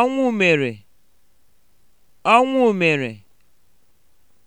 ọnwụ mere ọnwụ mere